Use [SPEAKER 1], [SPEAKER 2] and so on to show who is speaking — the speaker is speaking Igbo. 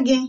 [SPEAKER 1] gị